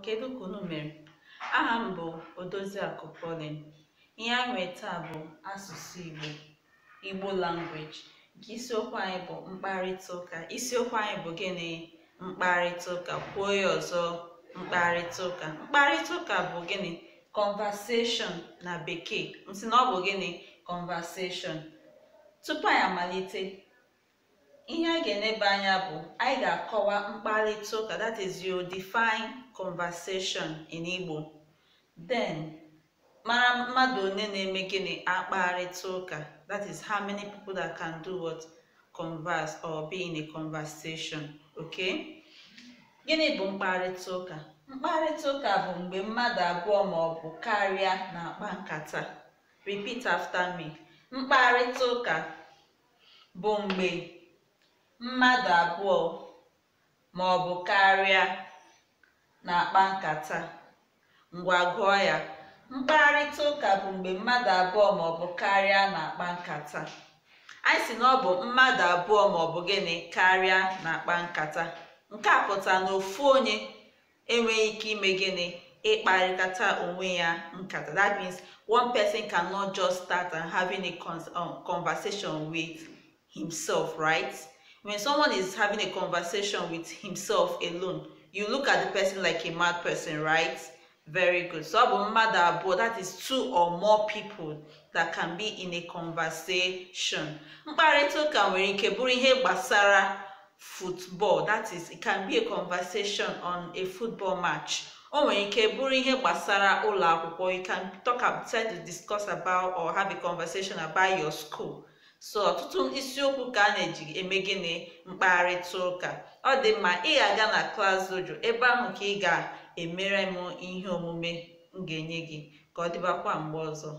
kedu ka unu mere aha m bụ Odoziakụ polin ihe anyị nweta taa bụ asụsụ Igbo Igbo language nke isiokwu anyị bụ mkparịta ụka isiokwu anyị bụ gịnị mkparịta ụka kwuo ya ọzọ mkparịta ụka mkparịta ụka bụ gịnị conversation na bekee m sị na ọ bụ gịnị conversation tupu anyị amalite ihe a ga enebe anya bụ anyị ga-akọwa mkparịta ụka that is your define conversation in Igbo then mara mmadụ onye na-eme gịnị akparịta ụka that is how many people that can do what converse or be in a conversation okay gịnị bụ mkparịta ụka mkparịta ụka bụ mgbe mmadụ abụọ maọbụ ọ karịa na-akpa nkata repeat after me mkparịta ụka bụ mgbe mmadụ abụọ ma ọ bụ karịa na-akpa nkata ngwa gụọ ya mkparịta ụka bụ mgbe mmadụ abụọ ma ọ bụ karịa na-akpa nkata anyị si na ọ bụ mmadụ abụọ ma ọ bụ gịnị karịa na-akpa nkata nke a pụtara na ofu onye enweghị ike ime gịnị ịkparịkata onwe ya nkata that means one person cannot just start and having a um, conversation with himself right When someone is having a conversation with himself alone, you look at the person like a mad person, right? Very good. So have a mother, but that is two or more people that can be in a conversation. Mkparịta ụka nwere ike bụrụ football, that is, it can be a conversation on a football match. o nwere ike bụrụ ihe gbasara you can talk about, discuss about or have a conversation about your school so ọtụtụ isiokwu ka a na-eji eme gịnị mkparịta ụka ọ dị mma ị ga-aga na klas dojo ebe ahụ ka ị ga-emere m ihe omume m ga-enye gị ka ọ dịbakwa mgbe ọzọ